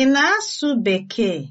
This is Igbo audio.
Ị na-asụ Bekee?